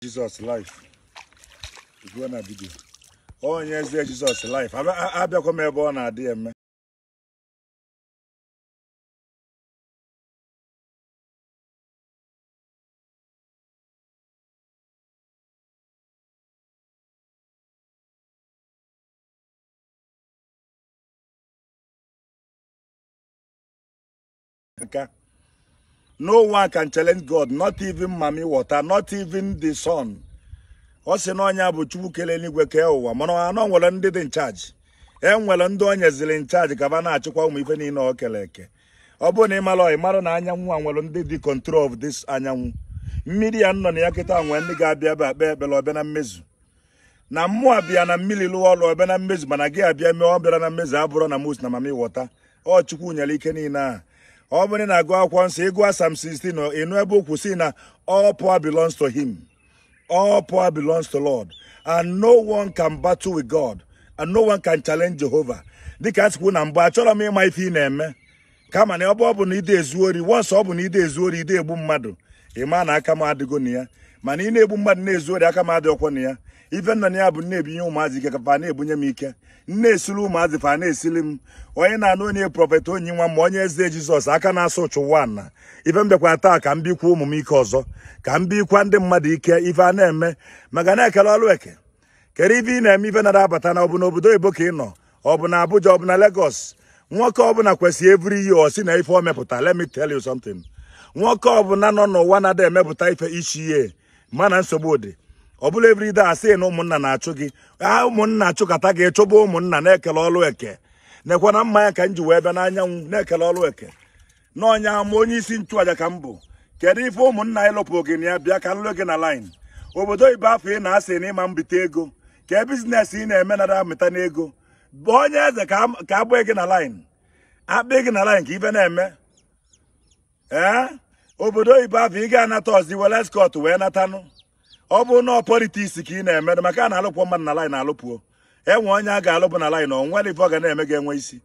Jesus life go na video onye eze Jesus life abịakwa m ebe ọ na-adị eme nka no one can challenge god not even mami water not even the son ọ sị na ọnya bụ chukwu kele eluigwe kee ụwa mana anọ nwere ndị dị nchaji e nwere ndị o nyeziri nchaji ka ba na-achịkwa ụmụ ife niile o kere eke ọ bụrụ na ị mara ị mara na anyanwụ a nwere ndị dị control of this anyanwụ mmiri ya nọ na ya kịta nwee ndị ga-abịa ebe akpa ekpere na mmezu na mmụọ bia na mmiri lụọ ọrụ ọbịa na mmezu mana gị abịa mee ọ bịara na mmezu abụrụ na mos na mami wọta ọ chukwu nyere ike niile a ọ bụrụ na agụ akwụkwọ nsọ ịgụ asam 16 ịnụ ebe okwu si na all power belongs to him all belongs to lord and no one can battle with god and no one can challenge jehova dịka a sikwu na mbụ achọrọ m ịma ife ị na-eme kama na ọ bụ ọ bụ na ide ezu wọnsọ ọ bụ na ide ezu ori ide egbu mmadụ ịma na aka m adịgo na ya mana ị na-egbu mmadụ na ezuori aka m adị ọkwọ na ya ibe na ya bụ nna-ebinye ụmụazị ike kafa na-ebunye m ike nna esili ụmụazị fa na-esili m onye na-anụ onye prọfet onyi nwa ma onye eze jizọs aka na-asụ ụchụ ụwa na ibe taa ka m bikwa ụmụ m ike ọzọ ka m bikwa ndị mmadụ ike ife a na-eme maka na-ekele ọlụ eke kere ibe ị na-eme ife na abata na ọ bụ n'obodo oyibo ka ị nọ ọ bụ na abuja ọ bụ na legos nwoke ọbụla kwesịrị eviri yi ọ sị na ife ọ mepụta let me tell you something nwoke ọbụla nọ n'ụwa na-ada emepụta ife ichi ihe mana nsogbu dị ọ bụla everyday asị na ụmụnna na-achụ gị ka ah, ụmụnna achụkata gị chụba ụmụnna na-ekele ọlụ eke na-ekwe na mmanya ka m ji wee bịa n'anyanwụ na-ekele ọlụ eke na ọnya ma onye isi nchụaja ka m bụ kedu ife ụmụnna anyị lụpụ gị na ya bịa ka nlụ gị na line obodo ibe afọ ị na-asị na ịma mbite ego ka e bizinesi ị na-eme nara amịta n'ego bụ onye eze ka agbaa gị na line akpa gị na line ka ibe na-eme ee obodo ibe afọ ị ga-anata ọzi were skọt wee natanụ ọ bụ na politiks ka ị na-emedo maka a na-alụpụ mmadụ na line alụpụo enwe onye a ga-alụpụ na line onwere ife ọ ga na-eme gị enwe isi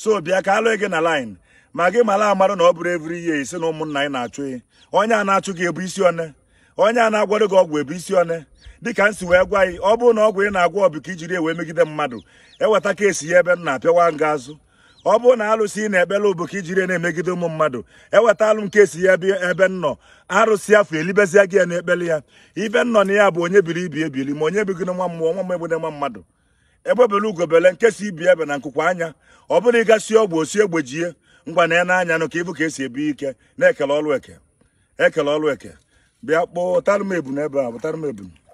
so bịa ka alụghị gị na line ma gị mara amarụ na ọ bụrụ evri ihe isi na ụmụnna anyị na-achụ gị onye a na-achụ gị ebu isi one onye a na-agwado gị ọgwụ ebu isi one dịka m si wee gwa gị ọ bụrụ na ọgwụ ị na-agwọ bụ ka ijiri wee megide mmadụ eweta keesi ya ebe m na-apịawa nga azụ ọ bụrụ na arụsị ị na-ebela iji ijiri na-emegide ụmụ mmadụ eweta alụ nke ya ebe nnọ arụsị afọ elibezia gị ya na-ekpeli ya ibe nnọ na ya bụ onye biri ibi ebili ma onye bigide nwa mmụọ nwa mgbegide nwa mmadụ egbebele ugobele nke si ibi ebe na nkụkwa anya ọ bụrụ ịgasị ọgwụ osi egbe jie ngwa na n'anya nụ ka ịbụ ka esi ebi ike na-ekele ọlụ eke ekele ọlụ eke bịa kpọọ ụtarụm ebu ebe a m ebu